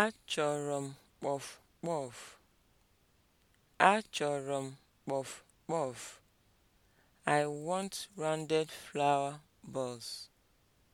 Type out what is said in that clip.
Achọrọ m kpọf kpọf. Achọrọ m kpọf kpọf. I want rounded flower balls.